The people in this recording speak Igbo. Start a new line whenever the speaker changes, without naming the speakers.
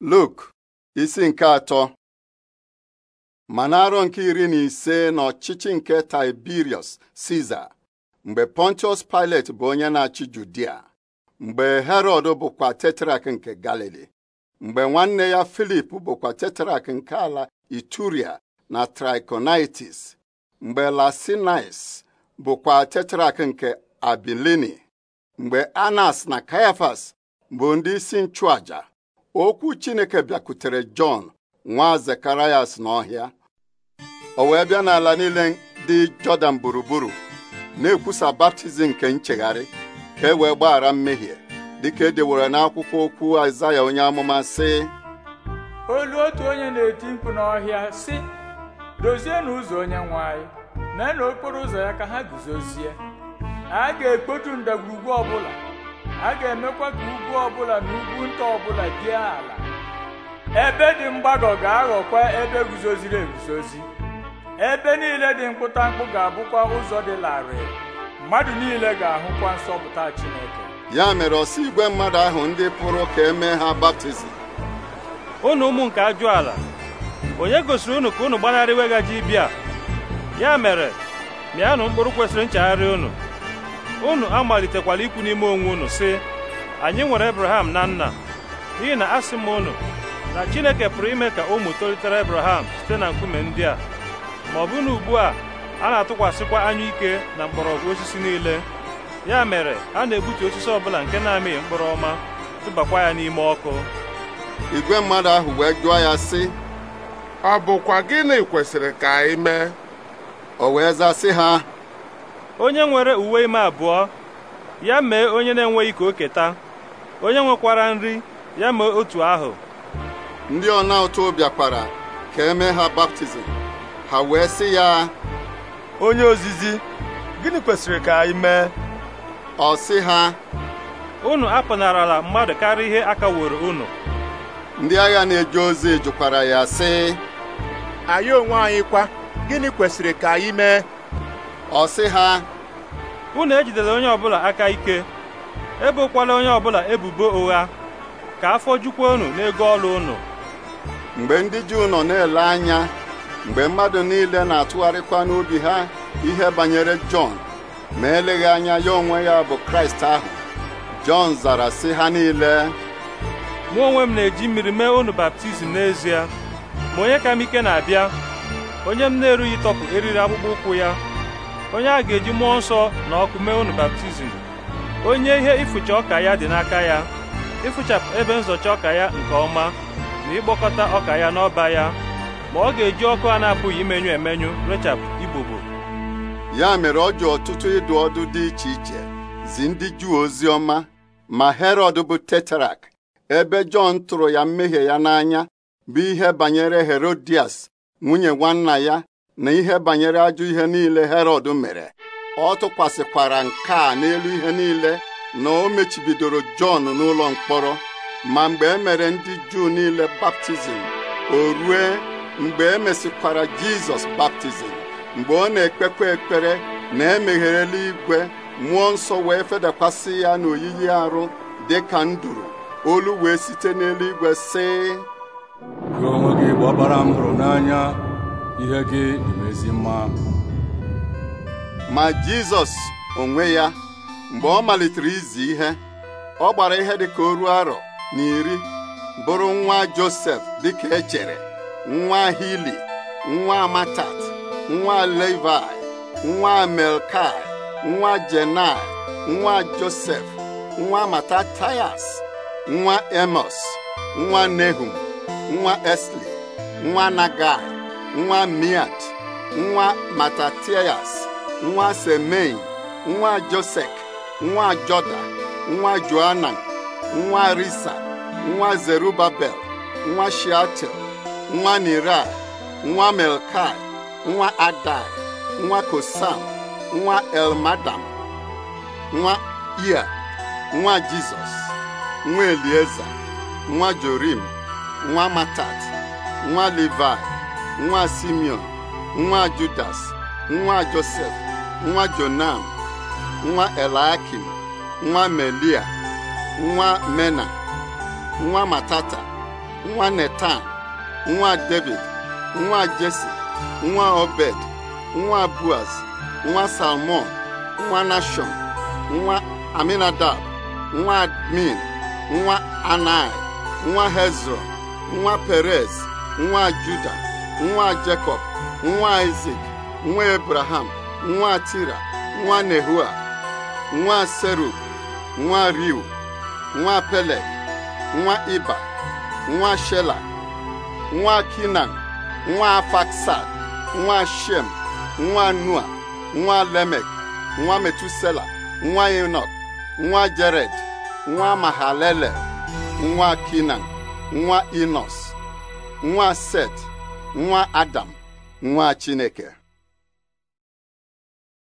Luk isi nke atọ ma n'arọ nke iri na ise n'ọchịchị nke Tiberius Siza mgbe Pontius Pilate bụ onye na-achị Judia mgbe Herod bụkwa tetrak nke Galili mgbe nwanne ya Filip bụkwa tetrak nke ala Ituria na triconitis mgbe Lasinais bụkwa tetrak nke Abilini mgbe Anas na Caiaphas bụ ndị isi nchụaja okwu Chineke bịakutere Jọn nwa Zekarayas n'ọhịa o wee bịa n'ala niile dị Jọdan gburugburu na-ekwusa baptizim nke nchegharị ka e wee gbaghara mmehie dịka e dewere n'akwụkwọ okwu Aịzaya onye amụma
sị olu otu onye na-eti mkpu n'ọhịa sị dozienụ ụzọ onye nwanyị mee na okporo ụzọ ya ka ha guzozie a ga-ekpotu ndagwurugwu ọbụla a ga-emekwa ka ugwu ọbụla na ugwu nta ọbụla dị ala ebe dị mgbagọ ga-aghọkwa ebe guzoziri eguzozi ebe niile dị mkpụ ga-abụkwa ụzọ dị larịị mmadụ niile ga-ahụkwa nsọpụta Chineke
ya mere ọsọ igwe mmadụ ahụ ndị pụrụ ka emee ha baptizim
unu ụmụ nke ajụ ala onye gosiri unu ka unu gbanarị iweghaji ibia ya mere mịanụ mkpụrụ kwesịrị nchegharị unu unu amalitekwala ikwu n'ime onwe unu si anyị nwere Abraham na nna n'ihi na asị m unu na Chineke pụrụ ime ka ụmụ tolitere Abraham site na nkume ndị a ma ọ bụ na ugbu a a na-atụkwasịkwa ike na mgbọrọgwụ osisi niile ya mere a na-egbutu osisi ọbụla nke na-amịghị mkpụrụ ọma tụbakwa ya n'ime ọkụ igwe mmadụ ahụ wee jụọ ya sị ọ bụkwa gịnị kwesịrị ka anyị mee o wee zaa ha onye nwere uwe ime abụọ ya mee onye na-enweghị ka o keta onye nwekwara nri ya mee otu ahụ ndị ọna ụtụ bịakwara ka eme ha baptizim ha wee sị ya onye ozizi gịnị kwesịrị ka anyị mee ọ sị ha unu apụnarala mmadụ karịa ihe akaworo unu
ndị agha na-eje ozi jụkwara ya sị anyị onwe anyị kwa
gịnị kwesịrị ka anyị mee ọ sị ha unu ejidela onye ọbụla aka ike ebokwala onye ọbụla ebubo ụgha ka afọ jukwa unu n'ego ọrụ unu mgbe ndị Juu nọ na-ele anya mgbe mmadụ niile
na-atụgharịkwa n'obi ha ihe banyere Jọn ma eleghị anya ya onwe ya
bụ Kraịst ahụ Jọn zara sị ha niile mụ onwe m na-eji mmiri mee unu baptizim n'ezie ma onye ka m ike na-abịa onye m na-erughị tọpụ eriri akpụkpọ ụkwụ ya onye a ga-eji mmụọ nsọ na ọkụ mee unu baptizim onye ihe ịfụcha ọka ya dị n'aka ya ịfụchapụ ebe nzọcha ọka ya nke ọma na ịkpọkọta ọka ya n'ọba ya ma ọ ga-eji ọkụ a na-apụghị imenyu emenyu rechapụ ibobo
ya mere ọ ji ọtụtụ ịdụ ọdụ dị iche iche zi ndị juu ozi ọma ma herọd bụ tetrak ebe jọn tụrụ ya mmehie ya n'anya bụ ihe banyere herodias nwunye nwanna ya na ihe banyere ajọ ihe niile herod mere ọ tụkwasịkwara nke a n'elu ihe niile na o mechibidoro Jọn n'ụlọ mkpọrọ ma mgbe e mere ndị Juu niile baptizim o rue mgbe e mesịkwara Jizọs baptizim mgbe ọ na-ekpekwa ekpere na emeghere igwe mmụọ nsọ wee fedakwasị ya n'oyiyi arụ dị ka nduru olu wee site n'eluigwe si gị
gị n'anya ihe gị dị
ezi mma ma Jizọs onwe ya mgbe ọ malitere izi ihe ọ gbara ihe dịka oru arọ na iri bụrụ nwa Josef dịka echere nwa Hili nwa matat nwa Levi nwa Melkai nwa Jenai nwa Josef nwa Matatayas nwa Emos nwa Nehum nwa Esli nwa Nagai nwa miat nwa matatias nwa semein nwa josek nwa joda nwa joanan nwa risa nwa zerubabel nwa shiatel nwa nira nwa melkai nwa adai nwa kosam nwa elmadam nwa ia nwa jizọs nwa elieza nwa jorim nwa matat nwa livai nwa Simeon nwa Judas nwa Josef nwa Jonam nwa Eliakim nwa Melia nwa Mena nwa Matata nwa Netan nwa David nwa jesse. nwa Obed nwa buaz. nwa Salmon nwa Nashon nwa Aminadab nwa Admin nwa Anai nwa Hezron nwa Perez nwa judas nwa jacob. nwa Izik nwa Ebraham nwa Tira nwa Nehua nwa Serug nwa Riu nwa pele nwa Iba nwa Shela nwa Kinan nwa Afaksad nwa Shem nwa Nua nwa Lemek nwa Metusela nwa Enok nwa Jared nwa mahalele nwa Kinan nwa Inos nwa Set nwa Adam nwa Chineke